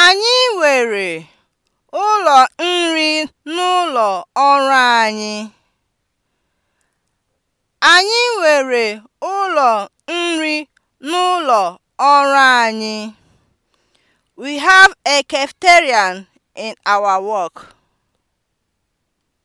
Anyị nwere ụlọ nri n'ụlọ ọrụ anyị. Anyị nwere ụlọ We have a in our work.